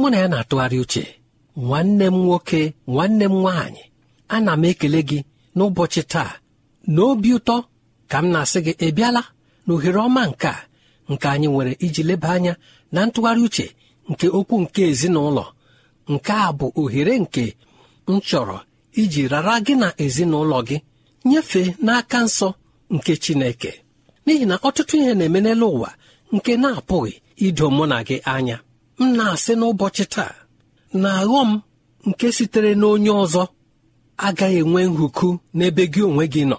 mụ na ya na-atụgharị uche nwanne m nwoke nwanne m nwaanyị ana m ekele gị n'ụbọchị taa na obi ụtọ ka m na-asị gị ị bịala na ohere ọma nke a nke anyị nwere iji leba anya na ntụgharị uche nke okwu nke ezinụlọ nke a bụ ohere nke m chọrọ iji rara gị na ezinụlọ gị nyefee n'aka nsọ nke Chineke n'ihi na ọtụtụ ihe na-eme ụwa nke na-apụghị ido mụ na gị anya m na-asị n'ụbọchị taa na m nke sitere n'onye ọzọ agaghị enwe nhụkụ n'ebe gị onwe gị nọ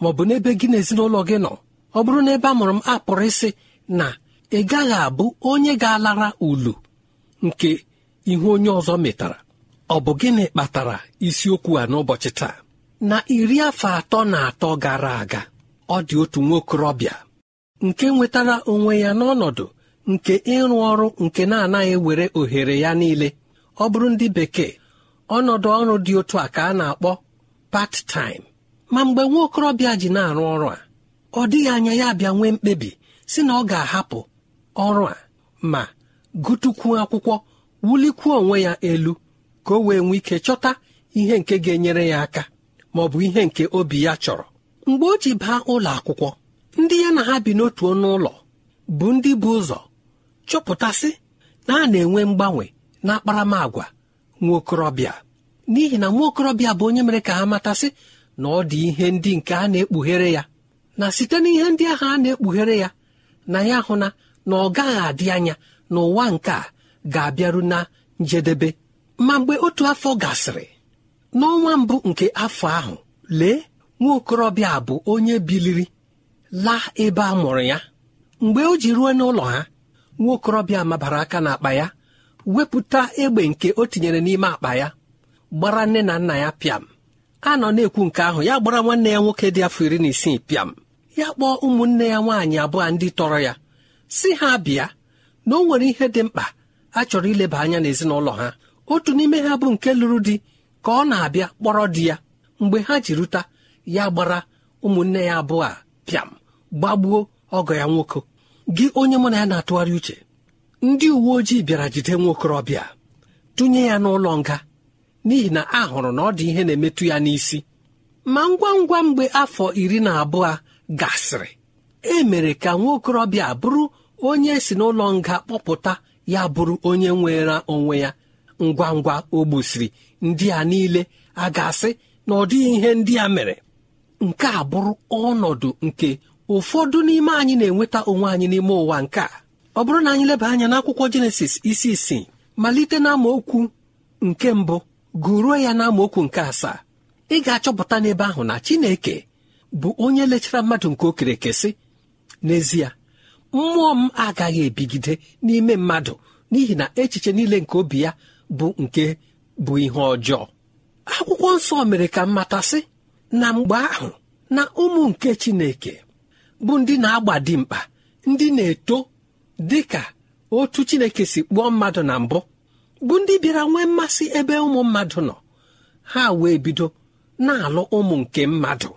ma ọ bụ n'ebe gị na ezinụlọ gị nọ ọ bụrụ ebe a mụrụ m apụrụ ịsị na ị gaghị abụ onye ga-alara ulu nke ihu onye ọzọ metara ọ bụ gịnị kpatara isiokwu a n'ụbọchị taa na iri afọ atọ na atọ gara aga ọ dị otu nwa okorobịa nke nwetara onwe ya n'ọnọdụ nke ịrụ ọrụ nke na-anaghị ewere ohere ya niile ọ bụrụ ndị bekee ọnọdụ ọrụ dị otu a ka a na-akpọ part-time. ma mgbe nwa okorobịa ji na-arụ ọrụ a ọ dịghị anya ya bịa nwee mkpebi si na ọ ga-ahapụ ọrụ a ma gụtukwuo akwụkwọ wulikwuo onwe ya elu ka o wee nwee ike chọta ihe nke ga-enyere ya aka ma ọ bụ ihe nke obi ya chọrọ mgbe o ji baa ụlọ akwụkwọ ndị ya na ha bi n'otu ọnụ ụlọ bụ ndị bụ ụzọ chọpụtasị na a na-enwe mgbanwe na akparamagwa nwa okorobịa n'ihi na nwa okorobịa bụ onye mere ka ha matasị na ọ dị ihe ndị nke a na-ekpughere ya na site n'ihe ndị ahụ a na-ekpughere ya na ya hụ na na ọ gaghị adị anya na ụwa nke a ga-abịaru na njedebe ma mgbe otu afọ gasịrị n'ọnwa mbụ nke afọ ahụ lee nwa okorobịa bụ onye biliri laa ebe a mụrụ ya mgbe o ji ruo n'ụlọ ha nwa okorobịa mabara aka n'akpa ya wepụta egbe nke o tinyere n'ime akpa ya gbara nne na nna ya pịam a nọ na-ekwu nke ahụ ya gbara nwanne ya nwoke dị afọ iri na isii pịam ya kpọọ ụmụnne ya nwaanyị abụọ ndị tọrọ ya si ha bịa na o nwere ihe dị mkpa a chọrọ ileba anya n'ezinụlọ ha otu n'ime ha bụ nke lụrụ di ka ọ na-abịa kpọrọ di ya mgbe ha ji ruta ya gbara ụmụnne ya abụọ a pịam gbagbuo ọgọ ya nwoke gị onye mụ na ya na-atụgharị uche ndị uwe ojii bịara jide nwokorobịa tụnye ya n'ụlọ nga n'ihi na a hụrụ na ọ dị ihe na-emetụ ya n'isi ma ngwa ngwa mgbe afọ iri na abụọ gasịrị e mere ka nwaokorobịa bụrụ onye si n'ụlọ nga kpọpụta ya bụrụ onye nwere onwe ya ngwa ngwa o gbusiri ndị a niile a ga-asị na ọ dịghị ihe ndị a mere nke a bụrụ ọnọdụ nke ụfọdụ n'ime anyị na-enweta onwe anyị n'ime ụwa nke a ọ bụrụ na anyị leba anya n'akwụkwọ jenesis isi isii malite na okwu nke mbụ gụruo ya na okwu nke asaa ị ga-achọpụta n'ebe ahụ na Chineke bụ onye lechara mmadụ nke okerekesị n'ezie mmụọ m agaghị ebigide n'ime mmadụ n'ihi na echiche niile nke obi ya bụ nke bụ ihe ọjọọ akwụkwọ nsọ mere ka mmatasị na mgbe ahụ na ụmụ nke Chineke bụ ndị na-agba dị mkpa ndị na-eto dị ka otu chineke si kpụọ mmadụ na mbụ bụ ndị bịara nwee mmasị ebe ụmụ mmadụ nọ ha wee bido na-alụ ụmụ nke mmadụ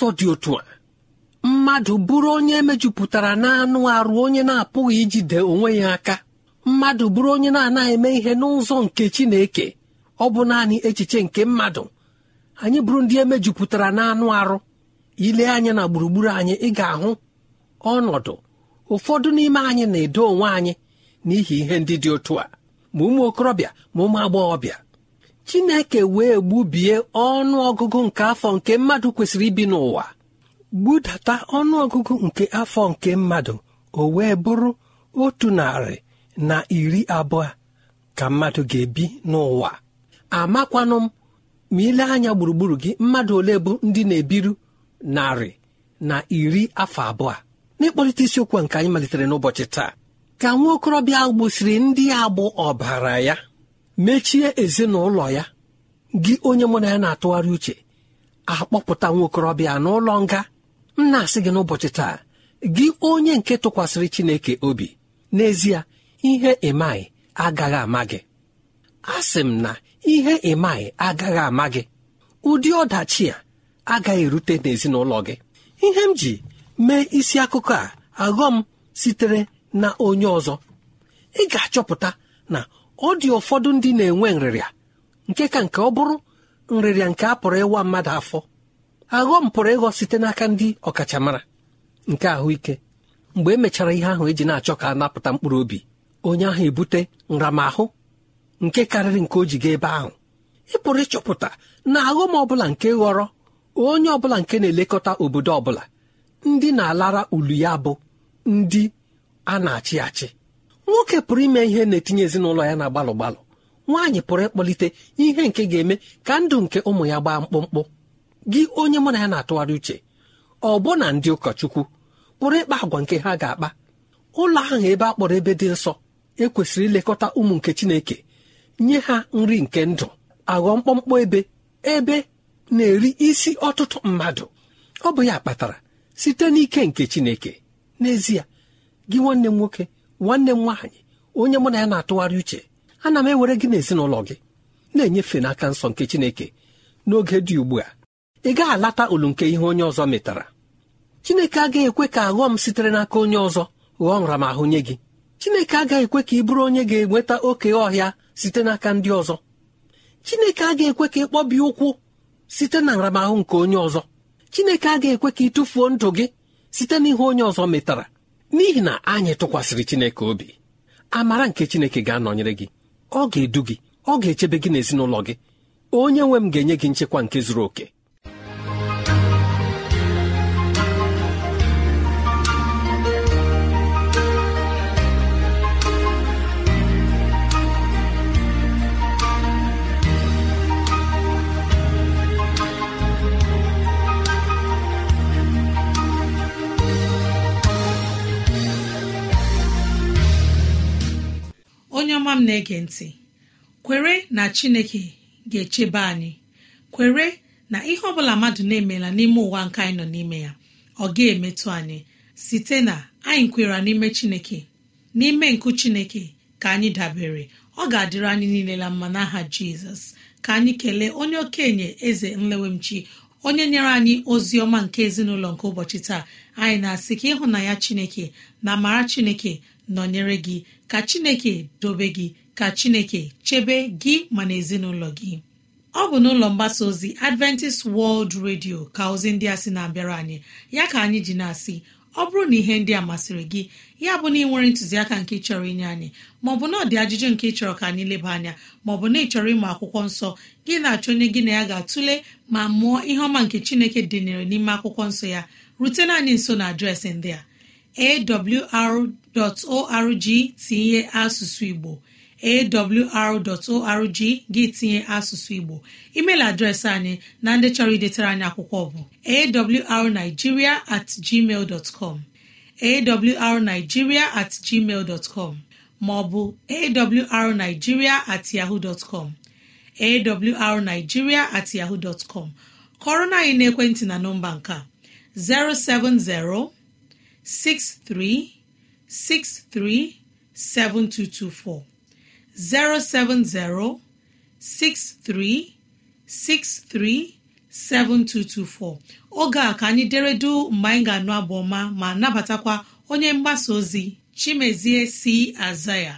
n'ụzọ dị otu a mmadụ bụrụ onye mejupụtara n'anụ arụ onye na-apụghị ijide onwe ya aka mmadụ bụrụ onye na-anaghị eme ihe n'ụzọ nke Chineke ọ bụ naanị echiche nke mmadụ anyị bụrụ ndị emejupụtara n'anụ arụ ile anya na gburugburu anyị ị ga-ahụ ọnọdụ ụfọdụ n'ime anyị na-edo onwe anyị n'ihi ihe ndị dị otu a ma ụmụ okorobịa ma ụmụ agbọghọbịa chineke wee gbubie ọnụ ọgụgụ nke afọ nke mmadụ kwesịrị ibi n'ụwa gbudata ọnụọgụgụ nke afọ nke mmadụ o wee bụrụ otu narị na iri abụọ ka mmadụ ga-ebi n'ụwa amakwanụ m ma ile anya gburugburu gị mmadụ ole bụ ndị na-ebiru narị na iri afọ abụọ n'ịkpọlite isiokwu nke anyị malitere n'ụbọchị taa ka nwa okorobịa ndị agbụ ọbara ya mechie ezinụlọ ya gị onye mụ na ya na-atụgharị uche akpọpụta nwokorobịa n'ụlọ nga m na-asị gị n'ụbọchị taa gị onye nke tụkwasịrị Chineke obi n'ezie ihe ịmaghị agaghị ama gị asị m na ihe ịmaghị agaghị ama gị ụdị ọdachi a agaghị erute n'ezinụlọ gị ihe m ji mee isi akụkọ a aghọm sitere na onye ọzọ ị ga-achọpụta na ọ dị ụfọdụ ndị na-enwe nrịrịa nke ka nke ọ bụrụ nrịrịa nke a pụrụ ịwa mmadụ afọ aghọm pụrụ ịghọ site n'aka ndị ọkachamara nke ahụike mgbe e mechara ihe ahụ eji na-achọ ka a napụta mkpụrụ obi onye ahụ ebute nramahụ nke karịrị nke o ji ebe ahụ ị pụrụ ịchọpụta na aghọm ọbụla nke ghọrọ onye ọbụla nke na-elekọta obodo ọbụla ndị na-alara ulu ya bụ ndị a na-achị achị nwoke pụrụ ime ihe na-etinye ezinụlọ ya na gbalụ gbalụ nwaanyị pụrụ ịkpọlite ihe nke ga-eme ka ndụ nke ụmụ ya gbaa mkpụmkpụ gị onye mụ na ya na-atụgharị uche ọbụna ndị ụkọchukwu pụrụ ịkpa agwa nke ha ga-akpa ụlọ ahụ ebe a kpọrọ ebe dị nsọ ekwesịrị ilekọta ụmụ nke chineke nye ha nri nke ndụ aghọ mkpọmkpọ ebe ebe na-eri isi ọtụtụ mmadụ ọ bụ ya kpatara site n'ike nke chineke n'ezie gị nwanne m nwoke nwanne m nwaanyị onye mụ na ya na-atụgharị uche ana m ewere gị n'ezinụlọ gị na-enyefe n'aka nsọ nke Chineke n'oge dị ugbu a ị gaghị alata olu nke ihe onye ọzọ metara Chineke agaghị ekwe ka m sitere n'aka onye ọzọ ghọọ nramahụ nye gị Chineke agaghị ekwe ka ị bụrụ onye ga-enweta oke ọhịa site n'aka ndị ọzọ Chineke agaghị ekwe ka ị kpọbie ụkwụ site na nramahụ nke onye ọzọ Chineke agaghị ekwe ka ị tụfuo ndụ gị site n'ihe onye ọzọ metara n'ihi na anyị tụkwasịrị Chineke obi amara nke Chineke ga-anọnyere gị ọ ga-edu gị ọ ga-echebe gị n'ezinụlọ gị onye nwe m ga-enye gị nchekwa nke zuru oke nwa m na-ege ntị kwere na chineke ga-echebe anyị kwere na ihe ọ bụla mmadụ na-emela n'ime ụwa nke anyị nọ n'ime ya ọ ga-emetụ anyị site na anyị kwere n'ime chineke n'ime nkụ chineke ka anyị dabere ọ ga-adịrị anyị niile na mma n'aha jizọs ka anyị kelee onye okenye eze nlewemchi onye nyere anyị ozi ọma nke ezinụlọ nke ụbọchị taa anyị na-asị ka ịhụnanya chineke na amara chineke nọnyere gị ka chineke dobe gị ka chineke chebe gị ma na ezinụlọ gị ọ bụ n'ụlọ mgbasa ozi adventist world radio ka ozi ndị a sị na-abịara anyị ya ka anyị ji na-asị ọ bụrụ na ihe ndị a masịrị gị ya bụ na ị nwere ntụziaka nke chọrọ inye anyị maọbụ na ọdị ajụjụ nke ị chọrọ ka anyị leba anya maọbụ na ị chọrọ ịmụ akwụkwọ nsọ gị na-achọ onye gị na ya ga-atụle ma mụọ ihe ọma nke chineke dịnyere n'ime akwụkwọ nsọ ya rutena anyị nso na adreesị ndị a awr awr.org tinye asụsụ igbo awr.org gị tinye asụsụ igbo email adreesị anyị na ndị chọrọ idetara anyị akwụkwọ bụ awrnigeria at gmail dot com awrnigeria at gmail dot com maọbụ awrnigeria at yahoo dot com awrnigeria at yahoo dot com kọrọ na anyị n'ekwentị na nọmba nke 070 63 637224 oge a ka anyị deredu mgbe anyị ga-anụ abụ ọma ma nabatakwa onye mgbasa ozi Chimezie si aza ya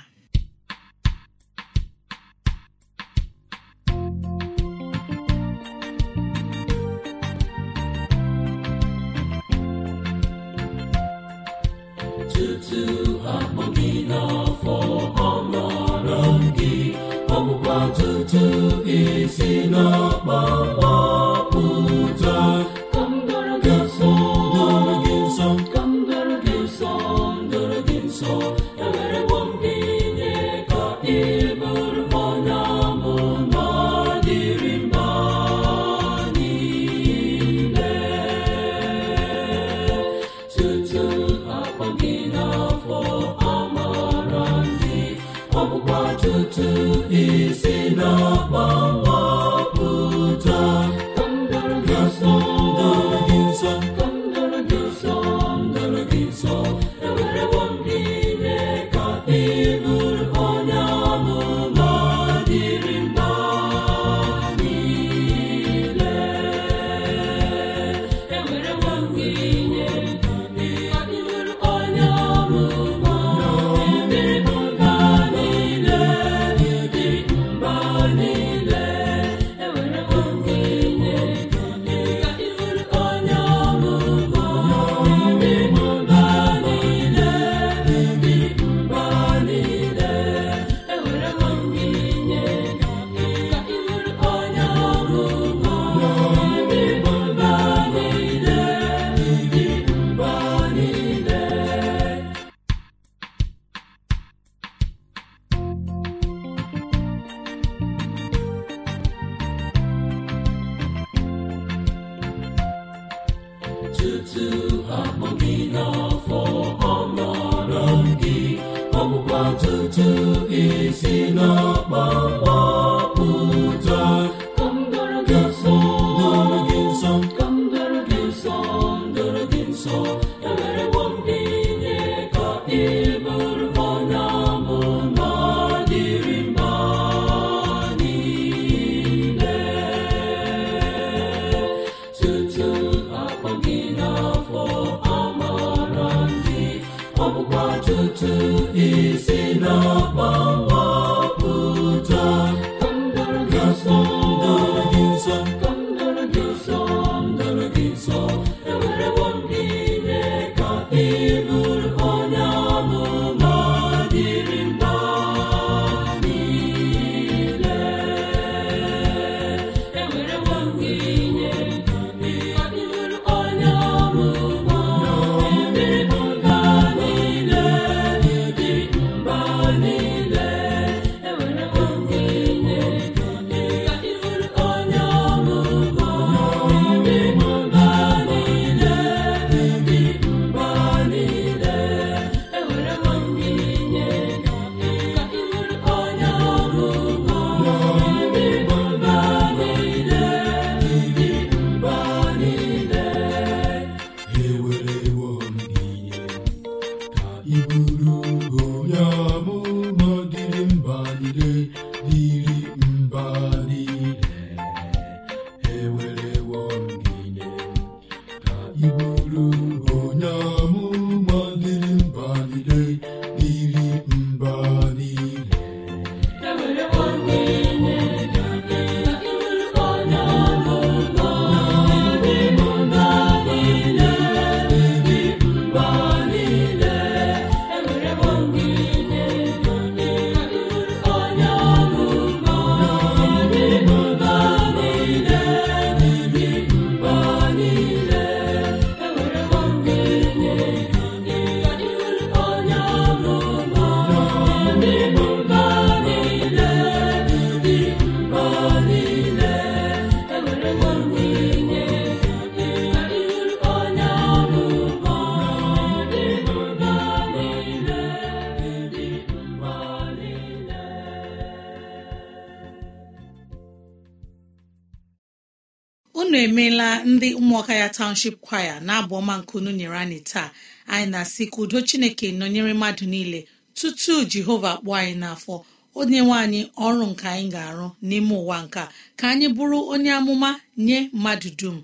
ụmụaka ya township kwaya na-abụ ọma nkunu nyere anyị taa anyị na-asị ka udo chineke nọnyere mmadụ niile tutu jehova kpụọ anyị n'afọ onye nwe anyị ọrụ nke anyị ga-arụ n'ime ụwa nka ka anyị bụrụ onye amụma nye mmadụ dum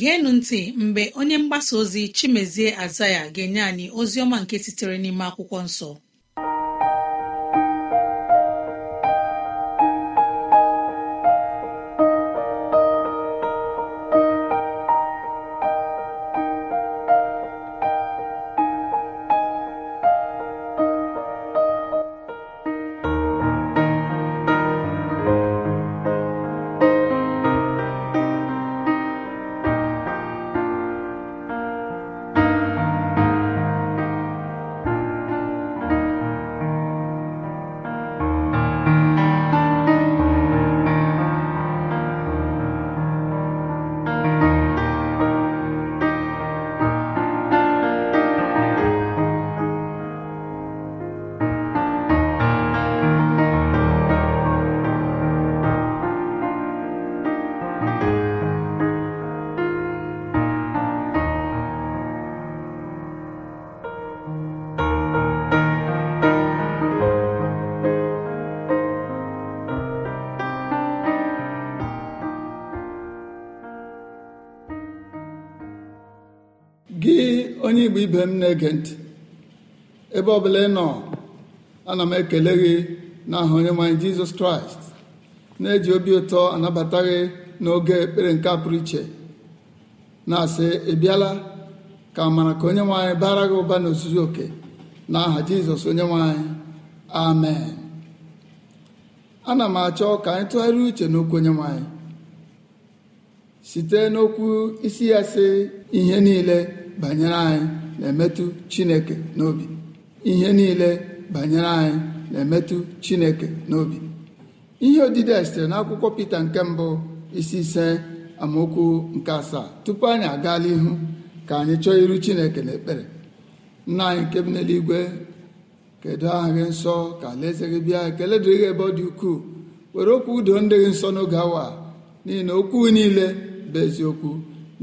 geenụ ntị mgbe onye mgbasa ozi chimezie azaya ga-enye anyị ozi ọma nke sitere n'ime akwụkwọ nsọ ibe m na-ege ntị ebe ọbụla ị nọ ana m ekele gị n'aha onyenwe anyị jizọs kraịst na-eji obi ụtọ anabata gị n'oge ekpere nke a pụrụ iche na-asị ị bịala ka amara ka onyenwe anyị bara gị ụba n'ozuzu oke na aha jizọs onyenwe anyị amen ana m achọ ka anyị tụgharịa uche n'okwu onyenwe anyị site n'okwu isi ya sị ihe niile banyere anyị na-emetụ chineke n'obi ihe niile banyere anyị na-emetụ chineke n'obi ihe odide a sitere n'akwụkwọ peter nke mbụ isi ise amaokwu nke asaa tupu anyị agaala ihu ka anyị chọọ iru chineke n'ekpere nna anyị nke bi n'eluigwe kedu aha gị nsọ ka alaeze gị bịa ekele dịrị gị ebe ọ dị ukwuu were okwu udo ndị gị nsọ n'oge awa n'ihi na okwu niile bụ eziokwu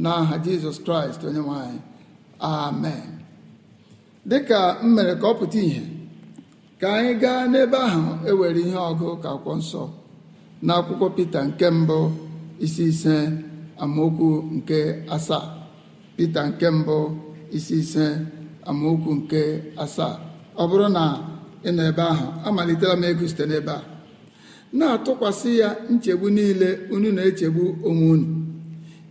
n'aha Jizọs Kraịst onye nwe anyị amen dịka m mere ka ọ pụta ìhè ka anyị gaa n'ebe ahụ ewere ihe ọgụ ka akwụkwọ nsọ na akwụkwọ Pita nke mbụ isi ise amaokwu nke asaa Pita nke mbụ isi ise amaokwu nke asaa ọ bụrụ na ị nọ ebe ahụ amalitela m ego site n'ebe a na-atụkwasị ya nchegbu niile unu na-echegbu onwe unu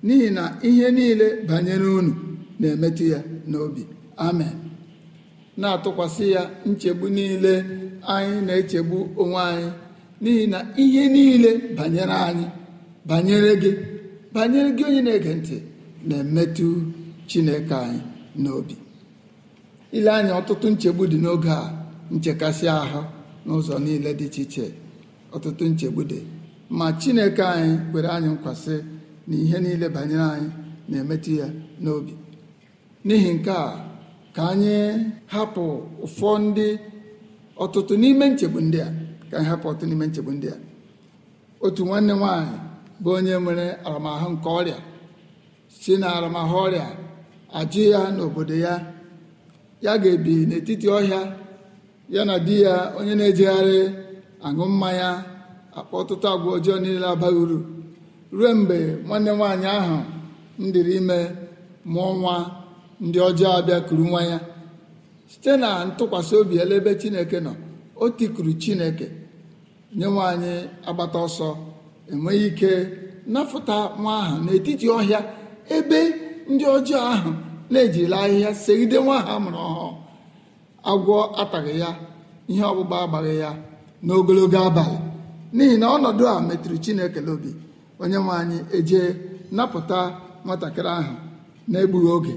n'ihi na ihe niile banyere unu na-emetụ ya n'obi amen na-atụkwasị ya nchegbu niile anyị na-echegbu onwe anyị n'ihi na ihe niile banyere anyị banyere gị banyere gị onye na-ege ntị na-emetụ chineke anyị n'obi ile anyị ọtụtụ nchegbu dị n'oge a nchekasị ahụ n'ụzọ niile dị iche iche ọtụtụ nchegbu dị ma chineke anyị kwere anyị nkwasị na ihe niile banyere anyị na-emetụ ya n'obi n'ihi nke a ka anyị hapụ ụfọ ndị ọtụtụ n'ime nchegbu ndị a ka anyị hapụ ọtụtụ n'ime nchegbu ndị a otu nwanne nwaanyị bụ onye nwere aramahụ nke ọrịa si na aramahụ ọrịa ajụ ya n'obodo ya ya ga-ebi n'etiti ọhịa ya na di ya onye na ejigharị aṅụ mmanya akpa ọtụtụ agwa ọjọọ niile abaghị uru ruo mgbe nwanne nwaanyị ahụ m dịrị ime mụọ nwa ndị ọjọọ abịakuru nwa ya site na ntụkwasị obi elebe chineke nọ o tikuru chineke nye nwaanyị agbata ọsọ enweghị ike napụta nwa ahụ n'etiti ọhịa ebe ndị ọjọọ ahụ na-ejirila ahịhịa segide nwa ha mụrụ ọhụụ agwọ ataghị ya ihe ọgbụgba agbaghị ya n'ogologo abalị n'ihi na ọnọdụ a metụrụ chineke n'obi onye nwaanyị eje napụta nwatakịrị ahụ na-egbughị oge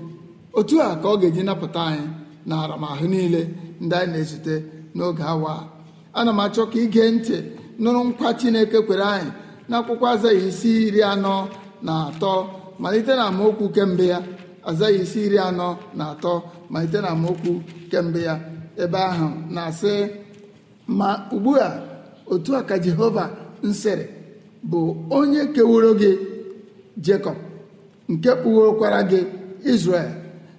otu a ka ọ ga-eji napụta anyị na aramahụ niile ndị anyị na-ezute n'oge awa ana m achọ ka ige ntị nụrụ nkwa chineke kwere anyị n'akwụkwọ azaghị isi iri anọ na atọ malite na amaokwu kemgbe ya azaghị isi iri anọ na atọ malite na amaokwu kemgbe ya ebe ahụ na-asị ma ugbu a otu a ka jehova nsịrị bụ onye kewuro gị jekọb nke kpughokwara gị izrel.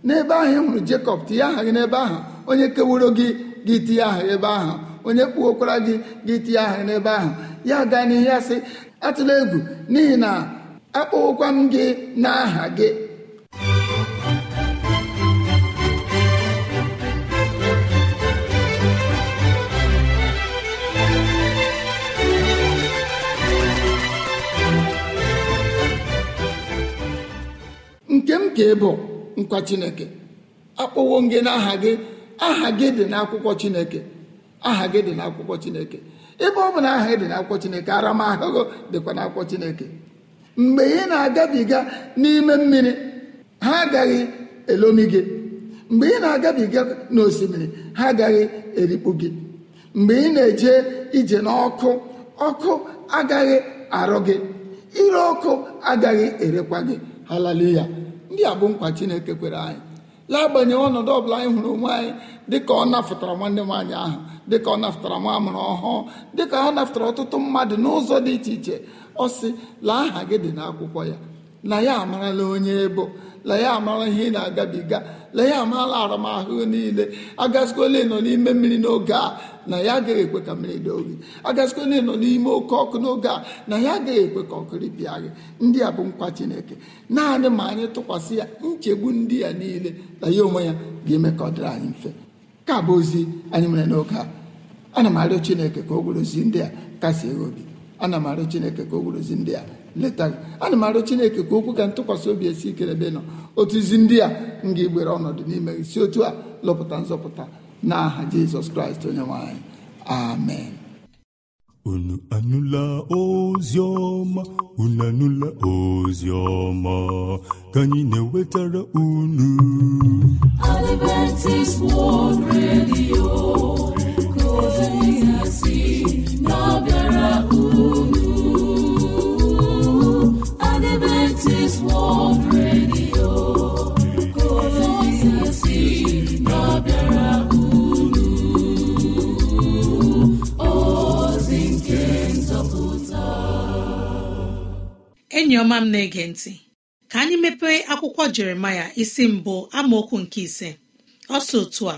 n'ebe ahụ ị hụrụ Jekọb tinye aha gị n'ebe ahụ onye kewuro gị gị tinye aha ebe ahụ onye kpuokwara gị gị tinye aha n'ebe ahụ ya gaa n'ihe ya sị atụla egwu n'ihi na akpọwokwam m gị n'aha gị nke m ka ị bụ nkwa chineke akpọwo gị n'aha gị aha gị dị n'akwụkwọ chineke aha gị dị n'akwụkwọ chineke ebe ọ bụ na aha gị dị n'akwụkwọ chineke aramahụhụ dịkwa n'akwụkwọ chineke mgbe ị na-agabiga n'ime mmiri ha agaghị elomi gị mgbe ị na-agabiga n'osimiri ha agaghị erikpu gị mgbe ị na-eje ije n'ọkụ ọkụ agaghị arụ gị ire ọkụ agaghị erekwa gị haleluya ndị a bụ nkwa chineke kwere anyị lagbanyeghị ọnọdụ ọbụla anyị hụrụ onwe anyị dịka ọ nafụtara nwanne m ahụ dịka ọ nafụtara nwa amụrụ ọhụụ dịka ha nafụtara ọtụtụ mmadụ n'ụzọ dị iche iche ọ sị laa aha gị dị n'akwụkwọ ya na ya amarala onye ebo lee ya amara ihe ị na-agabiga lee ya amara aramahụ niile agazikole nọ n'ime mmiri n'oge a na ya agaghị ekwe ka mmiri dị oyi agazikole nọ n'ime oke ọkụ n'oge a na ya agaghị ekwe ka ọkụ ripịa gị ndị a bụ nkwa chineke naanị ma anyị tụkwasị ya nchegbu ndị ya niile na ya onwe ya ga-eme ka ọ dịrị anyị mfe ka bụ ozi anyị nwere n'oge a ana m arịọ chineke ka o gburozi ndị a kasị obi ana m arịọ chineke ka o gburozi ndị a leta gị ana m arụ chineke ka okwu ga- ntụkwasị obi esi ike ebe nọ otu izi ndị a m ga-egbere ọnọdụ n'ime isi otu a lọpụta nzọpụta n'aha jizọs kraịst onye nwanyị amen unu anụla ozi ọma unu anụla ozi ọma ka anyị na-ewetara unu Adventist World Radio enyi ọma m na-ege ntị ka anyị mepee akwụkwọ jeremaya isi mbụ amaokwu nke ise Ọsọ otu a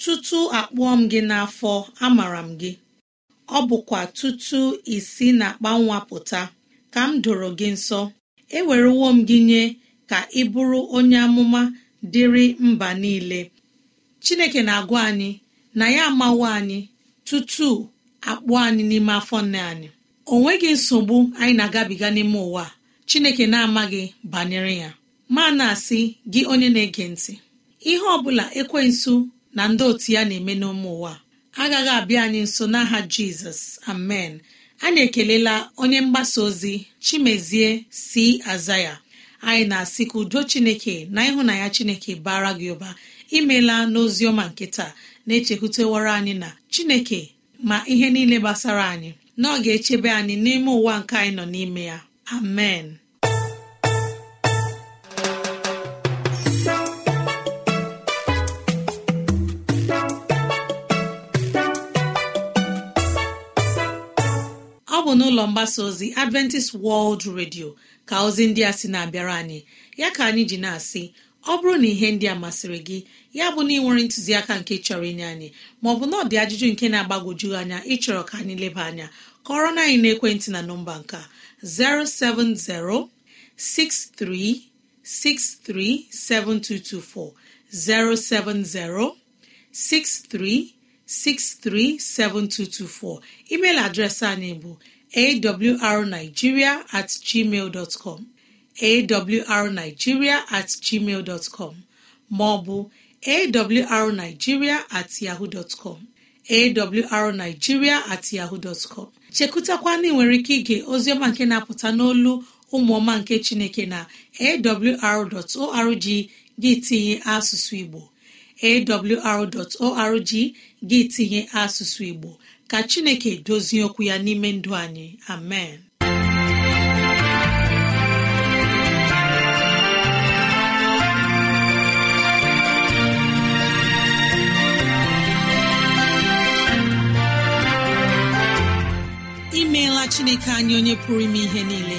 tutu akpụọ m gị n'afọ amara m gị ọ bụkwa tutu isi na akpa nwa pụta ka m doro gị nsọ ewerewo m gị nye ka ị bụrụ onye amụma dịrị mba niile chineke na-agwa anyị na ya amawo anyị tutu akpụ anyị n'ime afọ nne anyị o nweghị nsogbu anyị na-agabiga n'ime ụwa chineke na-amaghị banyere ya ma na-asị gị onye na-ege ntị ihe ọbụla bụla ekwensu na ndị otu ya na-eme n'ụmụ ụwa agaghị abịa anyị nso n'aha jizọs amen anyị ekelela onye mgbasa ozi chimezie si aza ya anyị na-asị ka udo chineke na ịhụnanya chineke bara gị ụba imela ọma nke taa na-echekwutewara anyị na chineke ma ihe niile gbasara anyị na ọ ga-echebe anyị n'ime ụwa nke anyị nọ n'ime ya amen n'ụlọ mgbasa ozi adventist world radio ka ozi ndị a sị na-abịara anyị ya ka anyị ji na-asị ọ bụrụ na ihe ndị a masịrị gị ya bụ na ị nwere ntụziaka nke chọrọ inye anyị maọbụ na ọ dị ajụjụ nke na-agbagwoju anya ịchọrọ ka anyị leba anya kọrọ na anyị n'ekwentị na nọmba nka 07063637224 070 63637224 email adreesị anyị bụ awrnigeria at gmail com awrnigeria at gmail dọtcọm maọbụ awrnigeria at yahoo dọtcọm awrnigeria at chekụtakwana nwere ike ige oziọma nke na-apụta n'olu ụmụọma nke chineke na awr.org gị tinye asụsụ igbo awr.org gị tinye asụsụ igbo ka chineke dozie okwu ya n'ime ndụ anyị amen imeela chineke anyị onye pụrụ ime ihe niile